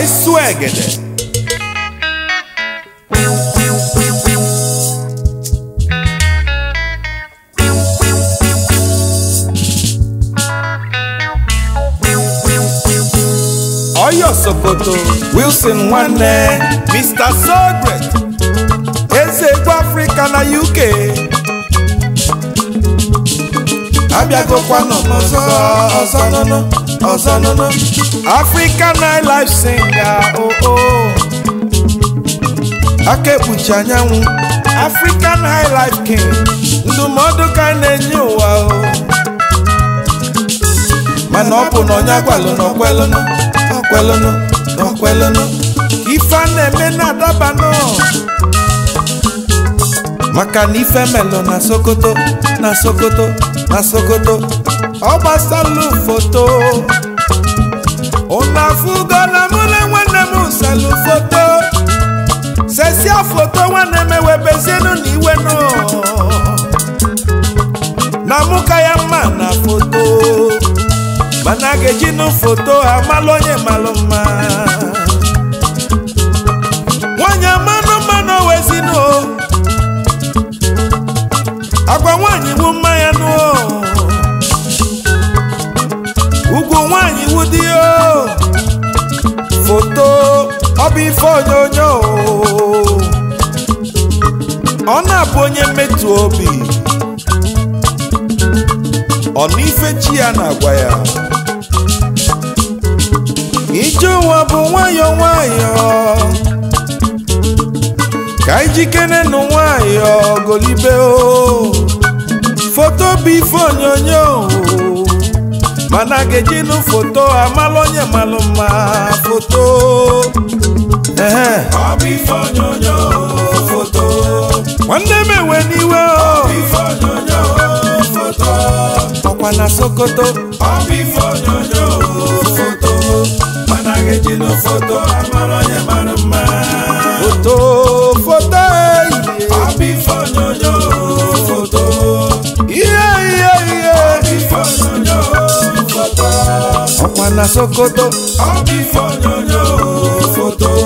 vai suegede. Oyo Sokoto, Wilson Nwanne, Mr. So Great, Sogret, Eze egwu Afrịka na UK. go Abịagokwa nọ n'ọzọ no no. ọzọ nono African nightlife singer oh oh aka ekpuchi anyanwụ African nightlife king ndụmọdụ ka na-enye ụwa o oh. mana ọ bụ na onye agwalụ na ọkwelụnụ ọkwelụnụ na ọkwelụnụ ife a na-eme na-adaba nọ. maka na ife melụ na Sokoto na Sokoto na Sokoto ọ gbasalụ foto ụnụ afụgo na mụ na nwanne m salụ foto sesia foto nwanne m ewebezienụ na iwe nọ na mụ ka ya mma na foto mana ga-ejinụ foto amalụ onye malụ mma bụ ọ na-abụ onye mmetụ obi ọ na ife chi ya na-agwa ya ije ụwa bụ nwayọ nwayọ ka ijikere nụ nwayọ golibe o foto bụ ife mana ga-ejinụ foto amalụ onye malụ mma foto ife onyonyo foto nwanne m enwe n'iwe o ife onyonyo foto ọkwa na sokoto ọ bụ ife onyonyo mana ga-eji na foto amara onye mara mma foto foto ọ oh, bụ ife onyonyo foto ihe oh, ihe ihe ife onyonyo foto na sokoto ọ bụ ife onyonyo